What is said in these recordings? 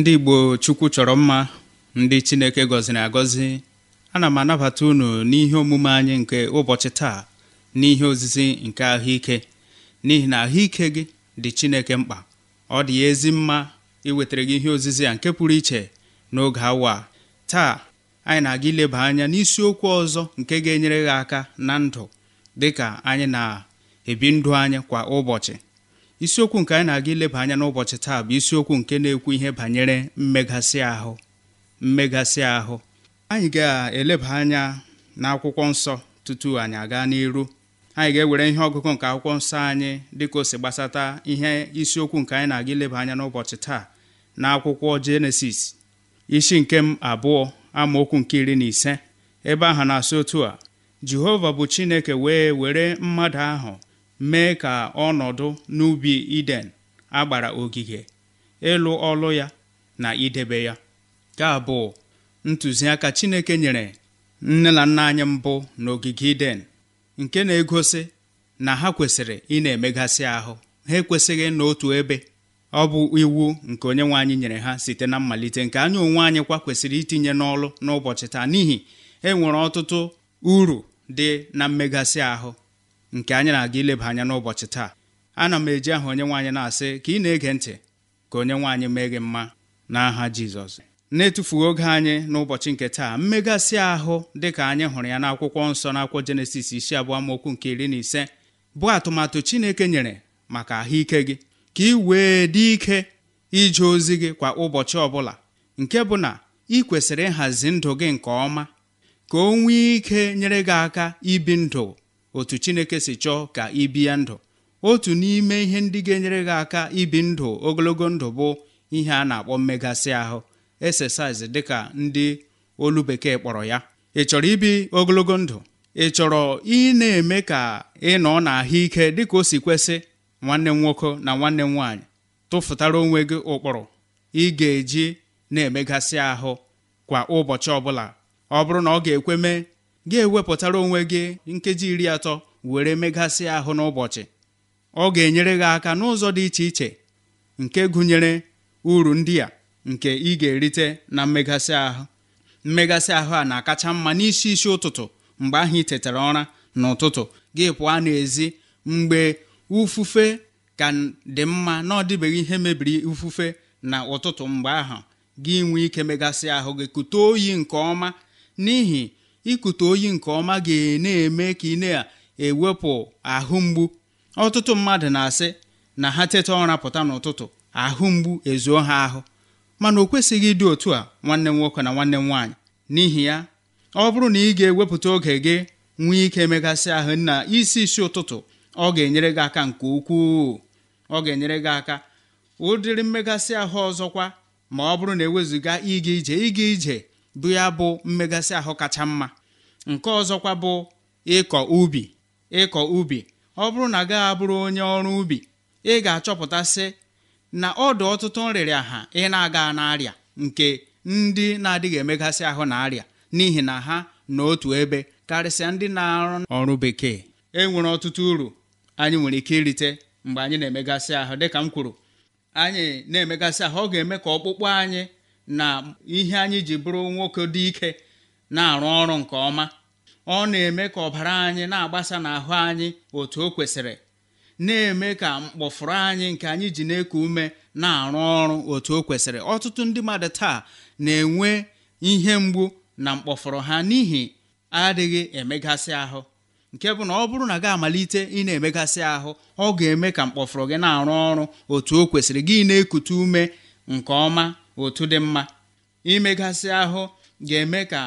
ndị Igbo Chukwu chọrọ mma ndị Chineke gọziri agọzi ana m anabata unu n'ihe omume anyị nke ụbọchị taa n'ihe ozizi nke ahụike n'ihi na ahụike gị dị Chineke mkpa ọ dị ya ezi mma iwetara gị ihe ozizi a nke pụrụ iche n'oge awa taa anyị na-aga ileba anya n'isiokwu ọzọ nke ga-enyere gị aka na ndụ dịka anyị na-ebi ndụ anyị kwa ụbọchị isiokwu nke anyị na-aga ileba anya n'ụbọchị taa bụ isiokwu nke na-ekwu ihe banyere mmegasị ahụ mmegasị ahụ anyị ga-eleba anya n'akwụkwọ nsọ tutu anyị aga n'iru anyị ga-ewere ihe ọgụgụ nke akwụkwọ nsọ anyị dịka o si gbasata ihe isiokwu nke anyị na-aga ileba anya n'ụbọchị taa na akwụkwọ jenesis isi nke m abụọ amaokwu nke iri na ise ebe ahụ na-asị otu a jehova bụ chineke wee were mmadụ ahụ mee ka ọnọdụ n'ubi iden agbara ogige ịlụ ọlụ ya na idebe ya ka bụ ntụziaka Chineke nyere nne na nna anyị mbụ n'ogige iden nke na-egosi na ha kwesịrị ị na-emegasị ahụ ha ekwesịghị n'otu ebe ọ bụ iwu nke onye nwe anyị nyere ha site na mmalite nke anyị onwe anyị kwa kwesịrị itinye n'ọlụ n'ụbọchị taa n'ihi enwere ọtụtụ uru dị na mmegasị ahụ nke anyị na-aga ileba anya n'ụbọchị taa ana m eji aha onye nwaanyị na-asị ka ị na-ege ntị ka onye nwaanyị mee gị mma n'aha Jizọs na-etufughị oge anyị n'ụbọchị nke taa mmegasị ahụ dị ka anyị hụrụ ya n'akwụkwọ nsọ n'akwụkwọ Jenesis isi abụọ amaokwu nke iri na ise bụ atụmatụ Chineke nyere maka ahụike gị ka ị wee dị ike ije ozi gị kwa ụbọchị ọbụla nke bụ na ị kwesịrị ịhazi ndụ gị nke ọma ka o nwee ike nyere gị aka ibi ndụ otu chineke si chọọ ka ị bie ndụ otu n'ime ihe ndị ga-enyere gị aka ibi ndụ ogologo ndụ bụ ihe a na-akpọ mmegasị ahụ exercise dịka ndị olu bekee kpọrọ ya ị chọrọ ibi ogologo ndụ ị chọrọ ị na-eme ka ị nọ n'ahụike dịka o si kwesị nwanne m nwoke na nwanne m nwaanyị tụfutara onwe gị ụkpụrụ ị ga-eji na-emegasị ahụ kwa ụbọchị ọbụla ọ bụrụ na ọ ga-ekwe mee gị ewepụtara onwe gị nkeji iri atọ were megasị ahụ n'ụbọchị ọ ga-enyere gị aka n'ụzọ dị iche iche nke gụnyere uru ndị a nke ị ga-erite na mmegasị ahụ mmegasị ahụ a na-akacha mma n'isi isi ụtụtụ mgbe ahụ ị tetara ụra n'ụtụtụ gị pụọ n'ezi mgbe ufufe ka dị mma na ọ dịbeghị ihe mebiri ufufe na ụtụtụ mgbe ahụ gị nwee ike megasị ahụ gị kute oyi nke ọma n'ihi ikute oyi nke ọma ga-na-eme ka ị na-ewepụ ahụ mgbu ọtụtụ mmadụ na-asị na ha teta ụra pụta n'ụtụtụ ahụ mgbu ezuo ha ahụ mana o kwesịghị ịdị otu a nwanne m nwoke na nwanne m nwaanyị n'ihi ya ọ bụrụ na ị ga-ewepụta oge gị nwee ike megasị ahụ na isi isi ụtụtụ ọ ga-enyere gị aka nke ukwuu ọ ga-enyere gị aka ụdịrị mmegasị ahụ ọzọkwa ma ọ bụrụ na ewezuga ịga ije ịga ije bụ ya bụ mmegasị ahụ kacha mma nke ọzọkwa bụ ịkọ ubi ịkọ ubi ọ bụrụ na gaghị abụrụ onye ọrụ ubi ị ga-achọpụtasị na ọdụ ọtụtụ nrịrịa aha ị na-aga n'arịa nke ndị na-adịghị emegasị ahụ na arịa n'ihi na ha n'otu ebe karịsịa ndị na-arụ ọrụ bekee e nwere ọtụtụ uru anyị nwere ike irite mgbe anyị na-emegasị ahụ dịka m kwuru anyị na-emegasị ahụ ọ ga-eme ka ọkpụkpụ anyị na ihe anyị ji bụrụ nwoke dị ike na-arụ ọrụ nke ọma ọ na-eme ka ọbara anyị na-agbasa n'ahụ anyị otu o kwesịrị na-eme ka mkpọfụrụ anyị nke anyị ji na-eku ume na-arụ ọrụ otu o kwesịrị ọtụtụ ndị mmadụ taa na-enwe ihe mgbu na mkpọfụrụ ha n'ihi adịghị emegasị ahụ nke bụ na ọ bụrụ na gị amalite ị na-emegasị ahụ ọ ga-eme ka mkpọfụrụ gị na-arụ ọrụ otu o kwesịrị gị na-ekute ume nke ọma otu dị mma imegasị ahụ ga-eme ka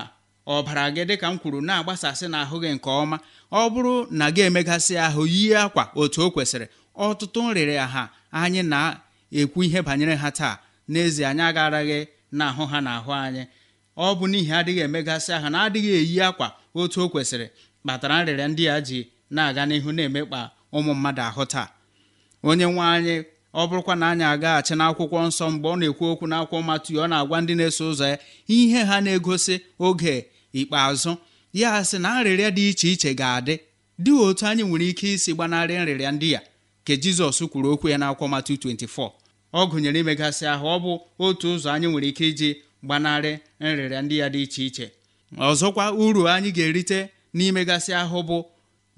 ọbara gị dịka m kwuru na-agbasasị n'ahụ gị nke ọma ọ bụrụ na gị emegasị ahụ yie akwa otu o kwesịrị ọtụtụ nrịrị ha anyị na-ekwu ihe banyere ha taa n'ezie anyị agaraghị na ahụ ha n'ahụ anyị ọ bụ n'ihi adịghị emegasị ahụ na adịghị eyi akwa otu o kwesịrị kpatara nrịrịa ndị a ji na-aga n'ihu na-emekpa ụmụ mmadụ ahụ taa onye nwe anyị ọ bụrụkwa na anyị agaghachi n'akwụkwọ nsọ mgbe ọ na-ekwu okwu n'akwụkwọ Matiu ọ na-agwa ndị na-eso ụzọ ya ihe ha na-egosi oge ikpeazụ ya sị na nrịrịa dị iche iche ga-adị dị otu anyị nwere ike isi gbanarị nrịrịa ndị ya ka Jizọs kwuru okwu ya n'akwụkwọ Matiu 24 ọ gụnyere imegasị ahụ ọ bụ otu ụzọ anyị nwere ike iji gbanarị nrịrịa ndị ya dị iche iche ọzọkwa uru anyị ga-erite n'imegasị ahụ bụ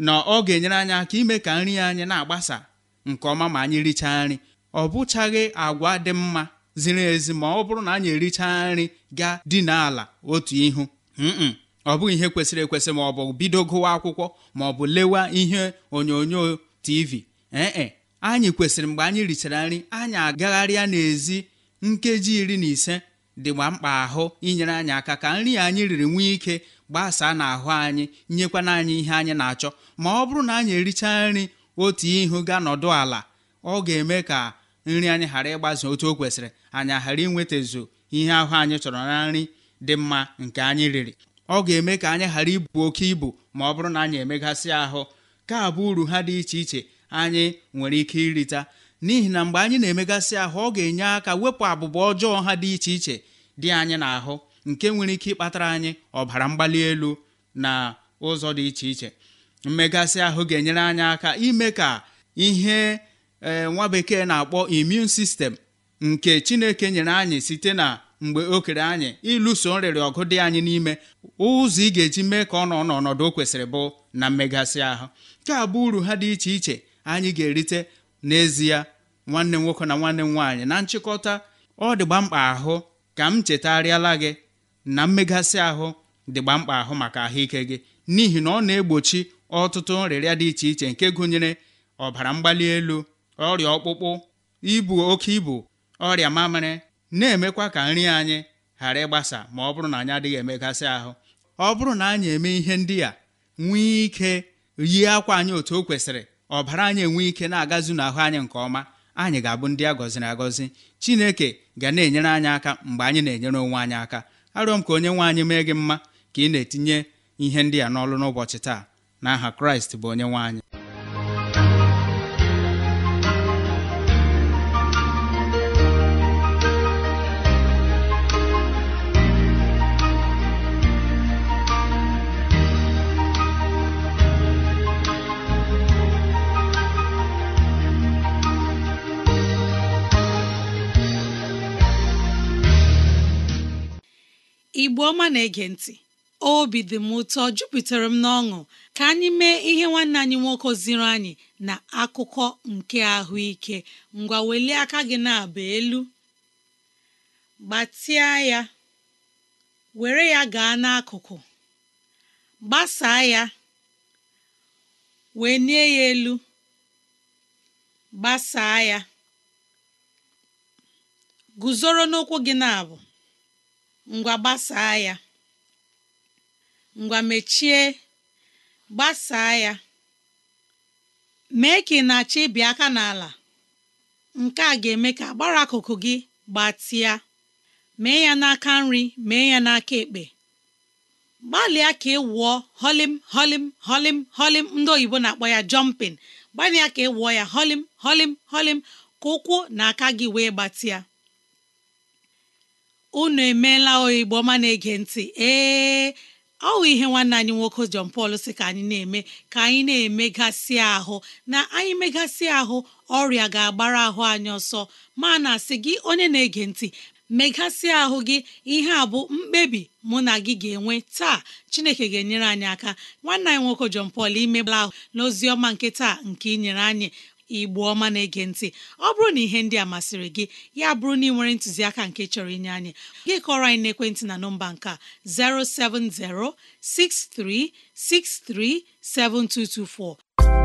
na ọ ga-enyere anyị aka ime ka nri anyị na-agbasa nke ọma ma anyị richaa nri ọ bụchaghị agwa dị mma ziri ezi ma ọ bụrụ na anyị erichaa nri ga dina ala otu ihu ọ bụghị ihe kwesịrị ekwesị ma ọ bụ bido gụwa akwụkwọ ma ọ bụ lewa ihe onyonyo tv ee anyị kwesịrị mgbe anyị richara nri anyị agagharịa n'ezi nkeji iri na ise dịgba mkpa ahụ inyere anyị aka ka nri anyị riri nwee ike gbasaa n'ahụ anyị nyekwana anyị ihe anyị na-achọ ma ọ bụrụ na anyị erichaa nri otu ihu ga nọdụ ala ọ ga-eme ka nri anyị ghara ịgbazi otu o kwesịrị anyị ghara inwetazu ihe ahụ anyị chọrọ na nri dị mma nke anyị riri ọ ga-eme ka anyị ghara ibu oke ibu ma ọ bụrụ na anyị emegasị ahụ ka abụ uru ha dị iche iche anyị nwere ike irita n'ihi na mgbe anyị na-emegasị ahụ ọ ga-enye aka wepụ abụba ọjọọ ha dị iche iche dị anyị n'ahụ nke nwere ike ịkpatara anyị ọbara mgbali elu na ụzọ dị iche iche mmegasị ahụ ga-enyere anyị aka ime ka ihe e, nwa bekee na-akpọ immune system nke chineke nyere anyị site na mgbe o kere anyị ịlụso nrịrị ọgụ dị anyị n'ime ụzọ ị ga-eji mee ka ọ nọ n'ọnọdụ o kwesịrị bụ na mmegasị ahụ nke a bụ uru ha dị iche iche anyị ga-erite n'ezie nwanne nwoke na nwanne m nwaanyị na nchịkọta ọ dịgba mkpa ahụ ka m chetarịala gị na mmegasị ahụ dịgba mkpa ahụ maka ahụike gị n'ihi na ọ na-egbochi ọtụtụ nrịrịa dị iche iche nke gụnyere ọbara mgbali elu ọrịa ọkpụkpụ ibu oke ibu ọrịa mamịrị na-emekwa ka nri anyị ghara ịgbasa ma ọ bụrụ na anyị adịghị emegasị ahụ ọ bụrụ na anyị eme ihe ndị a nwee ike yie akwa anyị otu o kwesịrị ọbara anyị enwe ike na-agazu n'ahụ anyị nke ọma anyị ga-abụ ndị a gọziri agọzi chineke ga na-enyere anyị aka mgbe anyị na-enyere onwe anyị aka arịọ m ka onye nwe anyị mee gị mma ka ị na-etinye ihe ndị a n'ọlụ n'ụbọchị taa n'aha kraịst bụ onye nwe igbo ọma na-ege ntị obi dị m ụtọ jupụtara m n'ọṅụ ka anyị mee ihe nwanne anyị nwoke ziri anyị na akụkọ nke ahụike ngwa welie aka gị na-aba elu gbatịa ya were ya gaa n'akụkụ gbasaa ya wee nie ya elu gbasaa ya guzoro n'ụkwụ gị na-abụ ngwa gbasaa ya ngwa mechie gbasaa ya mee ka ị na-achọ ịbịa aka n'ala nke a ga-eme ka agbara akụkụ gị gbatịa mee ya n'aka nri mee ya n'aka ekpe gbalịa ka ị wụọ holim holim holim holim ndị oyibo na-akpọ ya jọmpin gbalịa ka ị wụọ ya holim holim holim ka ụkwụ na aka gị wee gbatịa unu emeela oyibo ma na-ege ntị ee ọ bụ ihe nwanne anyị nwoke John Paul sị ka anyị na-eme ka anyị na-emegasị ahụ na anyị megasị ahụ ọrịa ga-agbara ahụ anyị ọsọ ma na asị gị onye na-ege ntị megasị ahụ gị ihe a bụ mkpebi mụ na gị ga-enwe taa chineke ga-enyere anyị aka nwanne anyị nwoke John Paul imebala ahụ n'ozi ọma nke taa nke ị nyere anyị igbo ọma na-ege ntị ọ bụrụ na ihe ndị a masịrị gị ya bụrụ na ị nwere ntụziaka nke chọrọ inye anyị gị kọrọ anyị n'ekwentị na nọmba nke a 070 6363 7224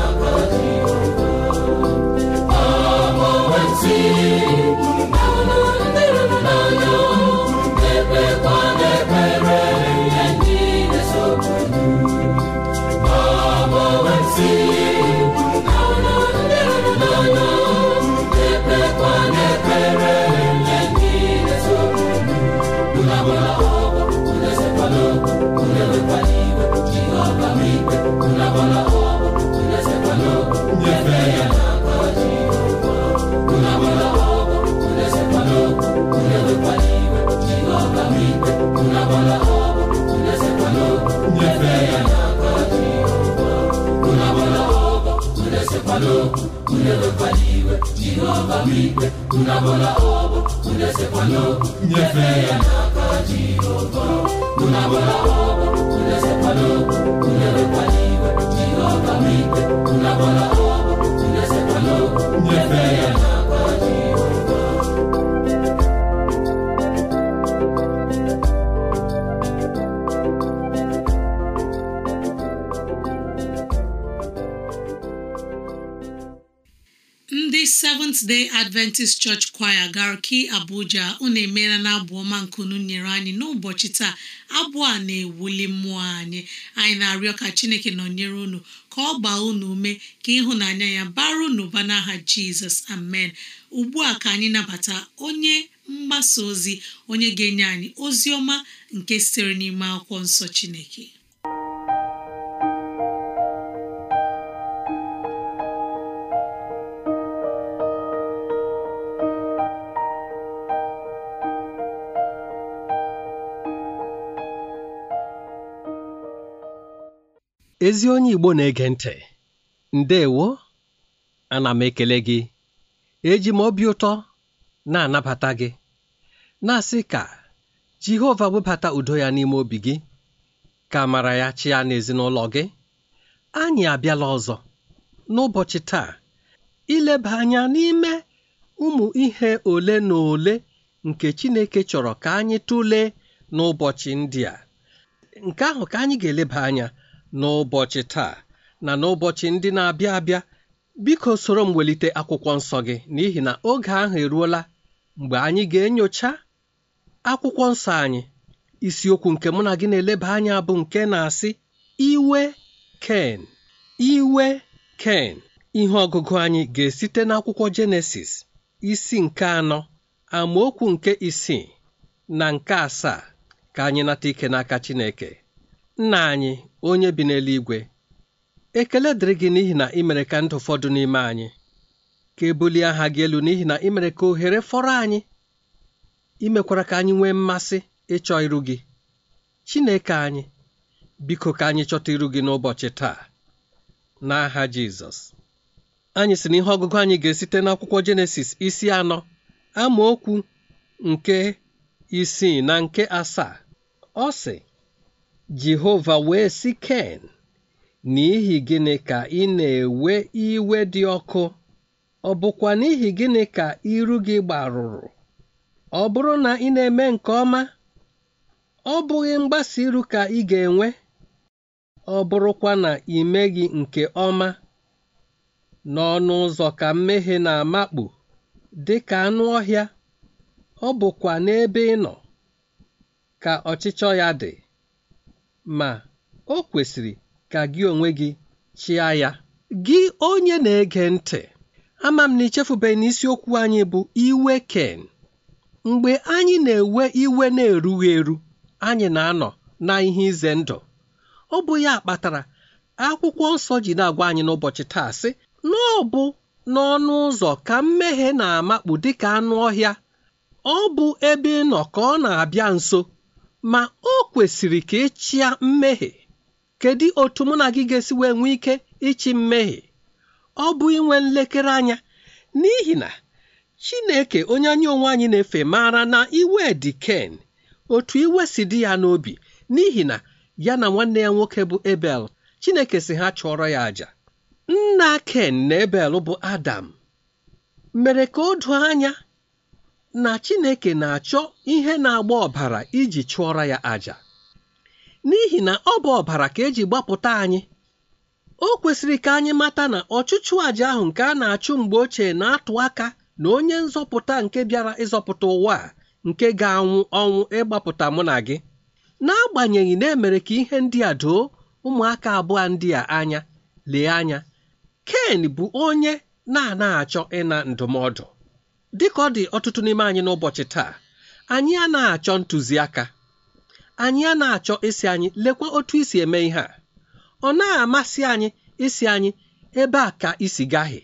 unabola obo n'okwu ya n'aka Jehova adventist church choir garki abuja unu emeela na abụ ọma nkunu nyere anyị n'ụbọchị taa abụ a na-ewuli mmụọ anyị anyị na-arịọ ka chineke nọnyere unu ka ọ gbaa unu ume ka ịhụnanya ya bara unu ụba n'aha jizọs amen ugbu a ka anyị nabata onye mgbasa ozi onye ga-enye anyị ozi ọma nke sitere n'ime akwụkwọ nsọ chineke ezi onye igbo na-ege ntị ndewo ana m ekele gị eji m obi ụtọ na-anabata gị na-asị ka jehova webata udo ya n'ime obi gị ka amara ya chịa n'ezinụlọ gị anyị abịala ọzọ n'ụbọchị taa ileba anya n'ime ụmụ ihe ole na ole nke chineke chọrọ ka anyị tụlee n'ụbọchị ndị a nke ahụ ka anyị ga-eleba anya n'ụbọchị taa na n'ụbọchị ndị na-abịa abịa biko soro m welite akwụkwọ nsọ gị n'ihi na oge ahụ eruola mgbe anyị ga-enyocha akwụkwọ nsọ anyị isiokwu nke mụ na gị na-eleba anya bụ nke na-asị iwe ken iwe ken ihe ọgụgụ anyị ga-esite n'akwụkwọ jenesis isi nke anọ amaokwu nke isii na nke asaa ka anyị nata ike n'aka chineke nna anyị onye bi n'eluigwe ekele dịrị gị n'ihi na ị ka ndụ fọdụ n'ime anyị ka ebulie aha gị elu n'ihi na ị mere ka ohere fọrọ anyị imekwara ka anyị nwee mmasị ịchọ iru gị Chineke anyị biko ka anyị chọta iru gị n'ụbọchị taa n'aha Jizọs anyị si na ihe ọgụgụ anyị ga-esite n'akwụkwọ Jenesis isi anọ amaokwu nke isii na nke asaa ọ sị Jehova wee sị Ken, N'ihi gịnị ka ị na-ewe iwe dị ọkụ? Ọ bụkwa n'ihi gịnị ka iru gị gbarụrụ? Ọ bụrụ na ị na-eme nke ọma, ọ bụghị mgbasa iru ka ị ga-enwe? Ọ bụrụkwa na ị meghị nke ọma, n'ọnụ ụzọ ka mmehie na-amakpu dị ka anụ ọhịa, ọ bụkwa n'ebe ị nọ ka ọchịchọ ya dị. ma o kwesịrị ka gị onwe gị chịa ya gị onye na-ege ntị ama m na ichefubeghị na isiokwu anyị bụ iwe ken mgbe anyị na-ewe iwe na-erughị eru anyị na-anọ na ihe ize ndụ ọ bụ ya kpatara akwụkwọ nsọ ji na-agwa anyị n'ụbọchị taa sị na bụ n'ọnụ ụzọ ka mmehie na-amakpu dịka anụ ọhịa ọ bụ ebe ị ka ọ na-abịa nso ma o kwesịrị ka ịchịa e mmehie kedu otu mụ na gị ga-esi wee nwee ike ịchị mmehie ọ bụ inwe nlekere anya n'ihi na chineke onye anyị onwe anyị na-efe maara na iwe dị ken otu iwe si dị ya n'obi n'ihi na ya na nwanne ya nwoke bụ ebel chineke si ha chụọrọ ya aja. nna ken na ebel bụ adam mere ka o doo anya na Chineke na-achọ ihe na-agba ọbara iji chụọra ya àjà n'ihi na ọ bụ ọbara ka eji gbapụta anyị o kwesịrị ka anyị mata na ọchụchụ àjà ahụ nke a na-achụ mgbe ochie na-atụ aka na onye nzọpụta nke bịara ịzọpụta ụwa a nke ga-anwụ ọnwụ ịgbapụta mụ na gị n'agbanyeghị na emere ka ihe ndị a doo ụmụaka abụọ ndị a anya lee anya Ken bụ onye na-ana achọ ịna ndụmọdụ dịka ọ dị ọtụtụ n'ime anyị n'ụbọchị taa anyị a achọ ntụziaka anyị a achọ isi anyị lekwa otu isi eme ihe a ọ na-amasị anyị isi anyị ebe a ka isi gaghị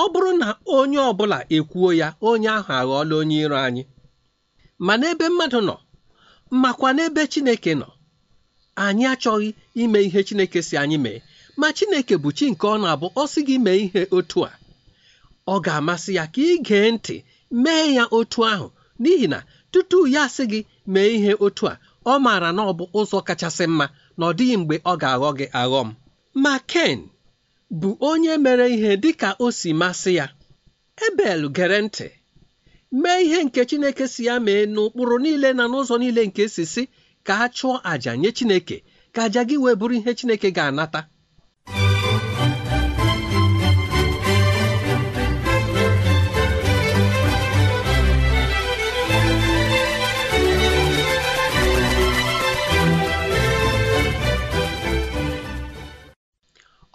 ọ bụrụ na onye ọbụla ekwuo ya onye ahụ aghọọla onye iro anyị ma n'ebe mmadụ nọ makwa n'ebe Chineke nọ anyị achọghị ime ihe Chineke si anyị mee ma Chineke bụ chi nke ọ na-abụ ọ sị gị mee ihe otu a ọ ga-amasị ya ka ị gee ntị mee ya otu ahụ n'ihi na tutu ya sị gị mee ihe otu a ọ maara na ọ bụ ụzọ kachasị mma na ọ dịghị mgbe ọ ga-aghọ gị aghọ m ma Ken bụ onye mere ihe dị ka o si masị ya Ebel gere ntị mee ihe nke Chineke si ya mee n'ụkpụrụ niile na n'ụzọ niile nke e si si ka a chụọ àjà nye Chineke ka àjà gị wee bụrụ ihe Chineke ga-anata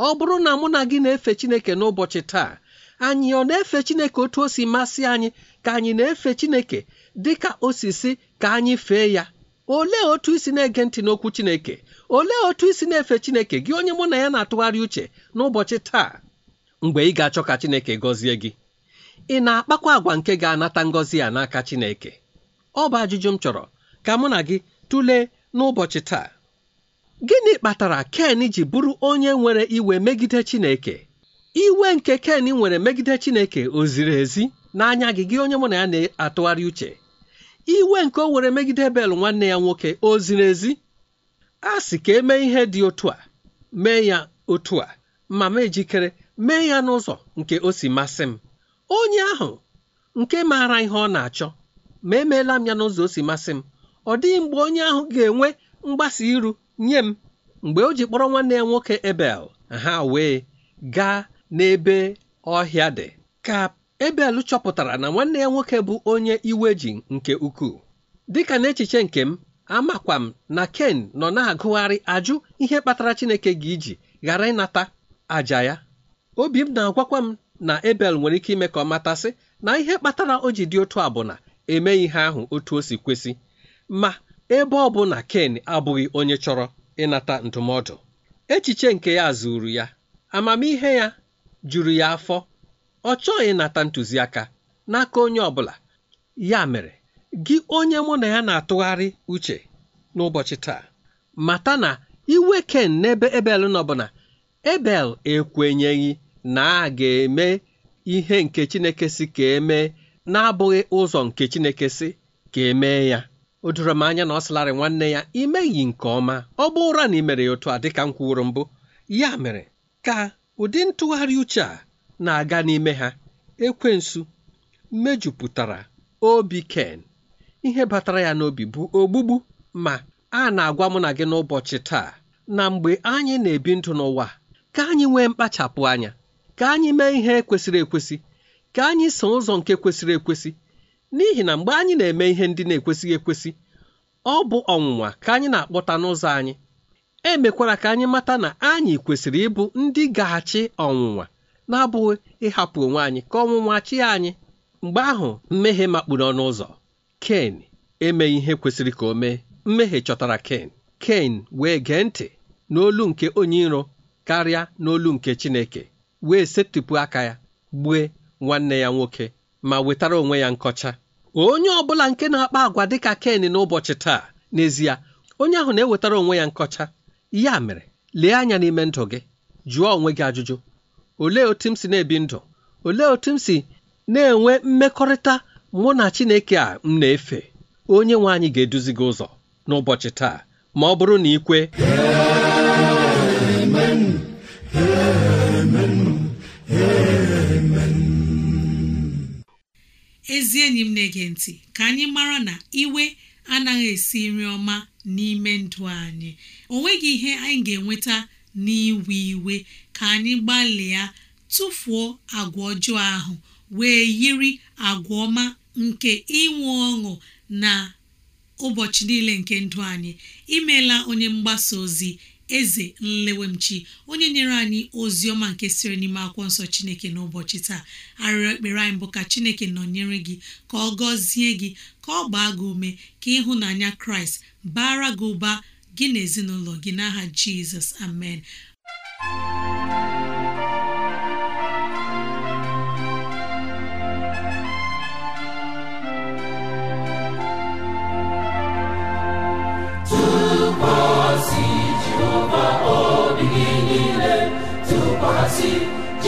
ọ bụrụ na mụ na gị na-efe chineke n'ụbọchị taa anyị ọ na-efe chineke otu o si masị anyị ka anyị na-efe chineke dị ka osisi ka anyị fee ya olee otu isi na-ege ntị n'okwu chineke olee otu isi na-efe chineke gị onye mụ na ya na-atụgharị uche n'ụbọchị taa mgbe ị ga-achọ ka chineke gọzie gị ị na-akpakwa agwa nke ga-anata ngọzi a n'aka chineke ọ bụ ajụjụ m chọrọ ka mụ na gị tụlee n'ụbọchị taa gịnị kpatara ken ji bụrụ onye nwere iwe megide chineke iwe nke ken nwere megide chineke o ziri ezi n'anya gị gị onye mụ na ya na-atụgharị uche iwe nke o were megide bel nwanne ya nwoke oziri ezi a sị ka e mee ihe dị otu a mee ya otu a ma m ejikere mee ya n'ụzọ nke o si masị m onye ahụ nke maara ihe ọ na-achọ ma emeela m ya n'ụzọ o si masị m ọ dịghị mgbe onye ahụ ga-enwe mgbasa iru nye m mgbe o ji kpọrọ nwanne ya nwoke ebel ha wee gaa n'ebe ọhịa dị ka ebel chọpụtara na nwanne ya nwoke bụ onye iwe ji nke ukwuu dịka n'echiche nke m amakwa m na ken nọ na-agụgharị ajụ ihe kpatara chineke ga iji ghara ịnata aja ya obi m na-agwakwa m na ebel nwere ike ime ka ọ matasị na ihe kpatara o ji dị otu a bụ emeghị ihe ahụ otu o si kwesị ma ebe ọ bụ na Ken abụghị onye chọrọ ịnata ndụmọdụ echiche nke ya zuru ya amamihe ya juru ya afọ ọ chọghị ịnata ntụziaka n'aka onye ọ bụla ya mere gị onye mụ na ya na-atụgharị uche n'ụbọchị taa mata na iwe Ken n'ebe Ebel nọ bụ na Ebel ekwenyeghị na a ga-eme ihe nke Chineke si ka emee na-abụghị ụzọ nke Chineke si ka emee ya o doro m anya na ọ sịlarị nwanne ya imeghị nke ọma ọ bụ ụra na imere ya otu a dịka m kwuru mbụ ya mere ka ụdị ntụgharị uche a na-aga n'ime ha ekwensu mejupụtara obi ken ihe batara ya n'obi bụ ogbugbu ma a na-agwa mụ na gị n'ụbọchị taa na mgbe anyị na-ebi ndụ n'ụwa ka anyị nwee mkpachapụ anya ka anyị mee ihe kwesịrị ekwesị ka anyị so ụzọ nke kwesịrị ekwesị n'ihi na mgbe anyị na-eme ihe ndị na-ekwesịghị ekwesị ọ bụ ọnwụnwa ka anyị na-akpọta n'ụzọ anyị emekwara ka anyị mata na anyị kwesịrị ịbụ ndị ga-achị ọnwụnwa na-abụghị ịhapụ onwe anyị ka ọnwụnwa chịa anyị mgbe ahụ mmehie makpuru ọnụ ụzọ ken emeghị ihe kwesịrị ka o mee mmehie chọtara ken ken wee gee ntị n'olu nke onye iro karịa n'olu nke chineke wee setịpụ aka ya gbue nwanne ya nwoke ma wetara onwe ya nkọcha onye ọ bụla nke na-akpa agwa dịka Ken n'ụbọchị taa n'ezie onye ahụ na-ewetara onwe ya nkọcha ya mere lee anya n'ime ndụ gị jụọ onwe gị ajụjụ ole otu m si na-ebi ndụ ole otu m si na-enwe mmekọrịta mụ na Chineke a m na-efe onye nwe anyị ga-eduzi gị ụzọ n'ụbọchị taa ma ọ bụrụ na ị kwe ezi enyi m na-ege ntị ka anyị mara na iwe anaghị esi nri ọma n'ime ndụ anyị o nweghị ihe anyị ga-enweta n'iwe iwe ka anyị gbalịa tụfuo agwa ọjọọ ahụ wee yiri agwa ọma nke inwe ọṅụ na ụbọchị niile nke ndụ anyị imeela onye mgbasa ozi eze nlewemchi onye nyere anyị ozi ọma nke siri n'ime akwụkwọ nsọ chineke n'ụbọchị taa arịrịọ ekpere anyị bụ ka chineke nọnyere gị ka ọ gọzie gị ka ọ gbaa gị ume ka ịhụnanya kraịst bara gị ụba gị n'ezinụlọ gị n'aha jizọs amen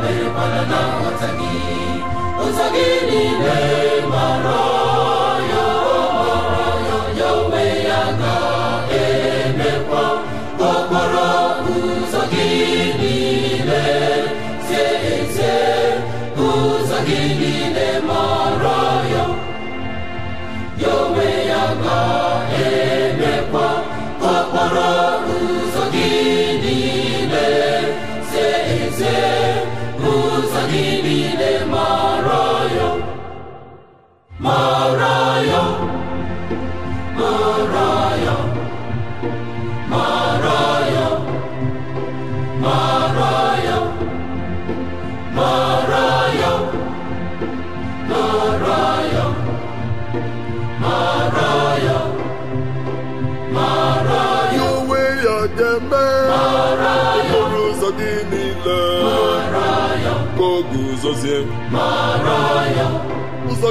mere kwana na nghọta gị ụzọ gị niile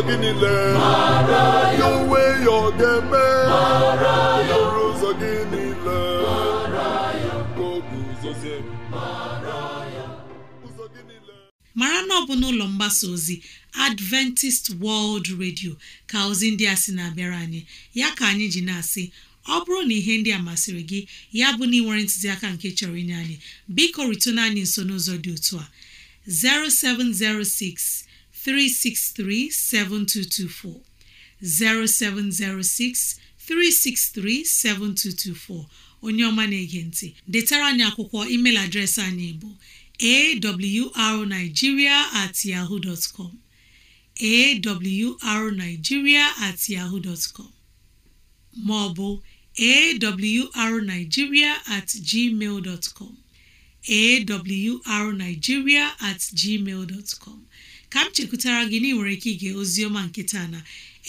gị niile ya ọ ga-eme ụzọ gị niile mara na ọ bụ n'ụlọ mgbasa ozi Adventist World Radio ka ozi ndị a sị na-abịara anyị ya ka anyị ji na-asị ọ bụrụ na ihe ndị a masịrị gị ya bụ na ị nwere ntụziaka nke chọrọ inye anyị biko ritụna anyị nso n'ụzọ dị otu a 0706 363 7224 0706 363 7224 onye ọma na-ege ntị detara anyị akwụkwọ email adreesị anyị bụ awrnigeria at yahoo awrnigeria at yahoo ma ọ bụ awrnigeria at gmail awrnigeria at gmail ka m chekwutara gị na ị nwere ike ige ozioma nke taa na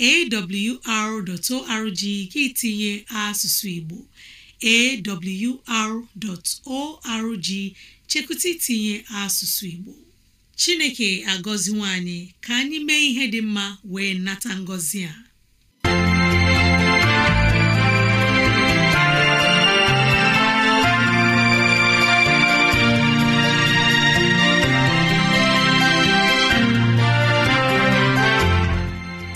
awr.org gị tinye asụsụ Igbo awr.org chekwụta itinye asụsụ Igbo Chineke agọziwo nwanyị ka anyị mee ihe dị mma wee nata ngọzi a